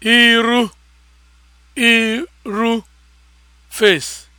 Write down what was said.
iru iru face